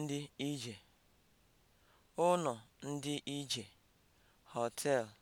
ndị ije (ụlọ ndị ije), họteelụ